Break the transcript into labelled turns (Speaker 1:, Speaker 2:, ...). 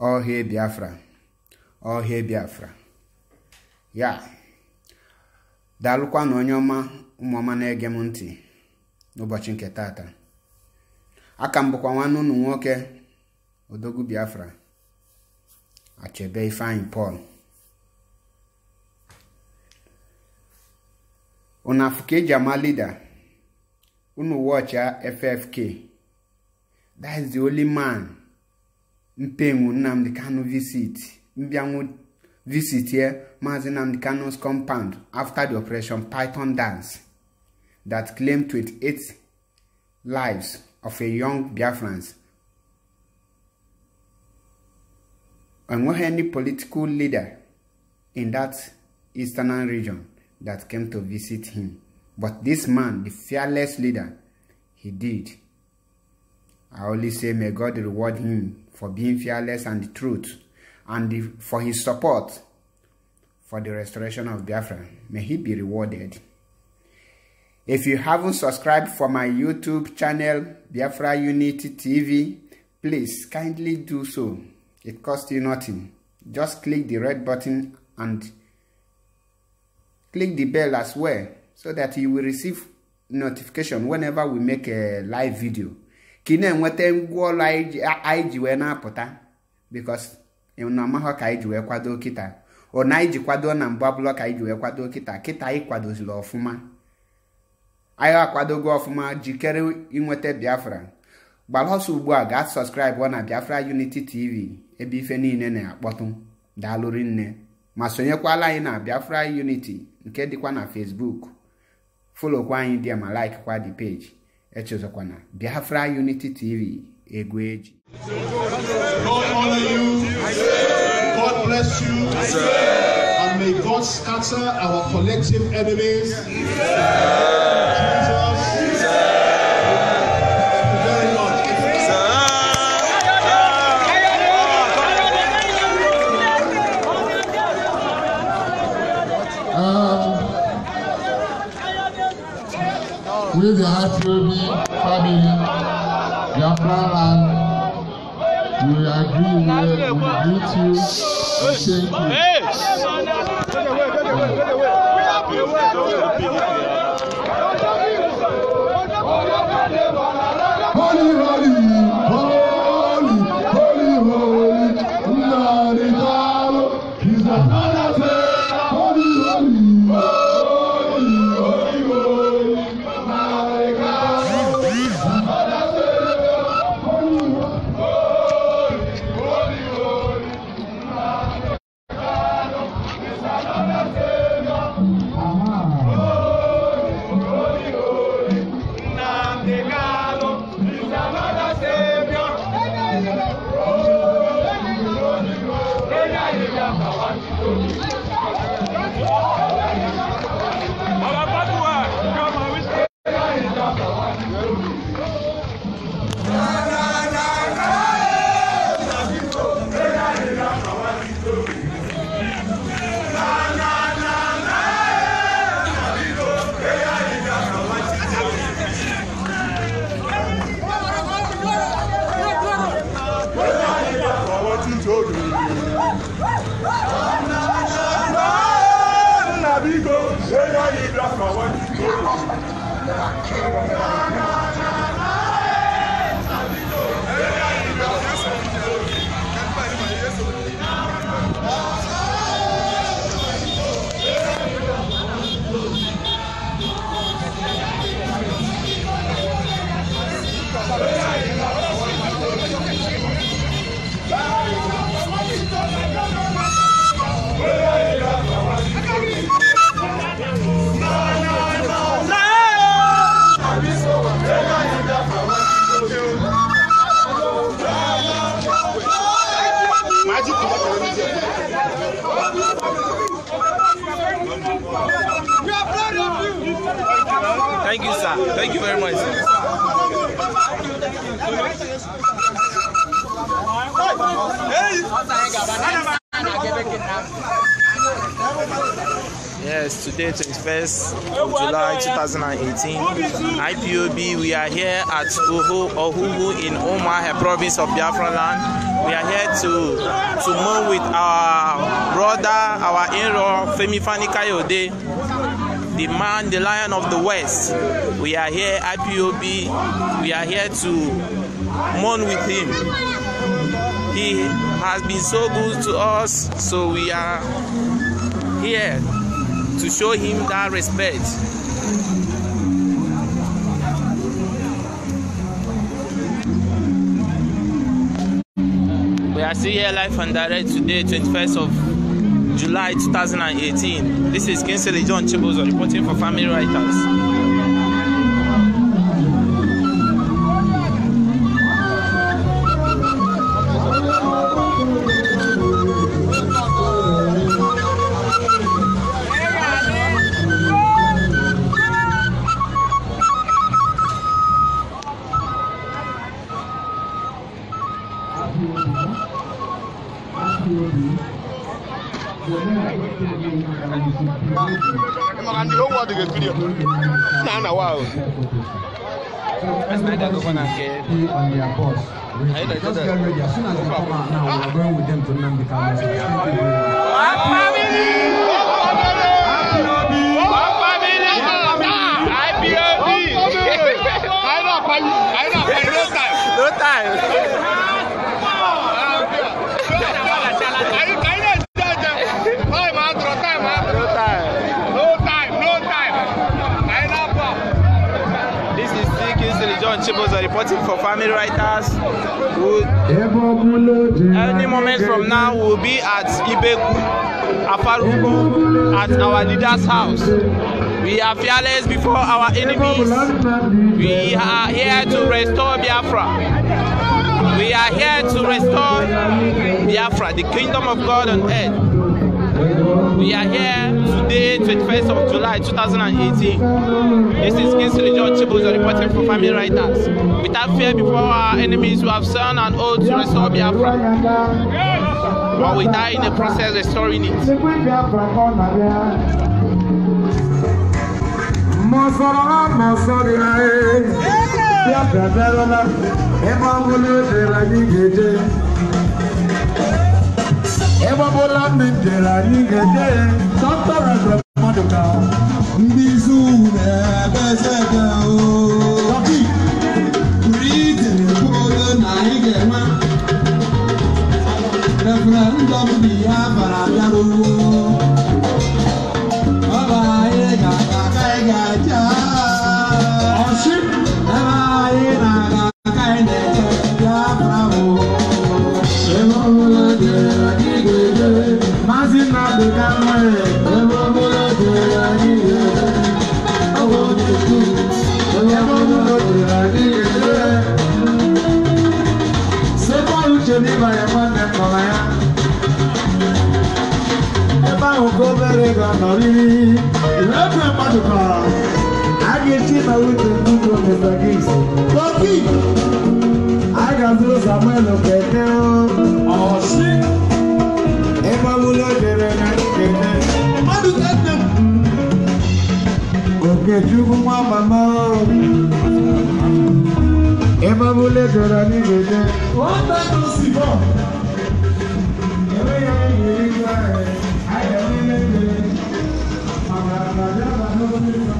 Speaker 1: ọhịa biafra ọhịa biafra ya daalụkwa na onye ọma ụmụọma na-ege m ntị n'ụbọchị nke taata aka m bụkwa nwanne ụnụ nwoke odogwu biafra achebe ifeanyị pọl unu afụ ka lida e unu wọchịa ffk that oliman. man mpenwu nnamdi kanu visit mbịanwu visit here maazi nnamdi kanu's compound after the operation python dance that claimed 28 lives of a young biafrans enweghị any political leader in that eastern region that came to visit him but this man the fearless leader he did I only say may God reward him for being fearless and the truth and the, for his support for the restoration of Biafra. May he be rewarded. If you haven't subscribed for my YouTube channel, Biafra Unity TV, please kindly do so. It costs you nothing. Just click the red button and click the bell as well so that you will receive notification whenever we make a live video. ka ị na-enweta ngwa ọrụ anyị ji wee na-apụta bikos na amahọ ka anyị ji wee kwado kịta ọ anyị ji kwado na mbụ abụlọ ka anyị ji wee kwado kịta kịta anyị kwadoziri ọfụma anyị akwadogo ọfụma jikere inweta biafra gbara ọsọ ugbu a gaa sọskraịbụ na biafra uniti tv ebe ife niile na-akpọtụ daalụrị nne ma sonyekwala anyị na biafra unity nke dịkwa na fesbuk folokwa anyị dị ma laikkwa dị peji echezọkwana biafra unity tv egwu
Speaker 2: God bless you. And may God scatter our collective enemies. greet you and thank you. Hey.
Speaker 1: Holy, holy, holy, holy, holy, holy, holy, holy, holy, holy, holy, holy, holy, holy, holy,
Speaker 2: Thank you very much. Yes, today 21st July 2018, IPOB, we are here at Uhu, Ohuhu in a province of Biafra land. We are here to, to move with our brother, our in-law, Femi Fani Kayode, the man, the lion of the west. We are here, IPOB, we are here to mourn with him. He has been so good to us, so we are here to show him that respect. We are still here live and direct today, 21st of July 2018. This is Kinsley John Chibuzo reporting for Family Writers.
Speaker 1: rekiria na na wao
Speaker 2: No time. supporting for family writers
Speaker 1: any
Speaker 2: moment from now we will be at Ibeku, Afarugo, at our leader's house. We are fearless before our enemies. We are here to restore Biafra. We are here to restore Biafra, the kingdom of God on earth. We are here today, 21st of July 2018. This is Kingsley John Chibuzo reporting for Family Writers. Without fear before our enemies who have sworn an oath to restore Biafra. But we die in the process restoring it. Yeah.
Speaker 1: Ebobola mmejere anyị ga-eje
Speaker 2: dọkịta Reverend Maduka ndị izu na-ebe eze
Speaker 1: ẹ máa mú lẹ́gbẹ̀rẹ̀ ní gbèdé. wọ́n
Speaker 2: tẹ́tù sí bọ̀.
Speaker 1: ẹ̀rọ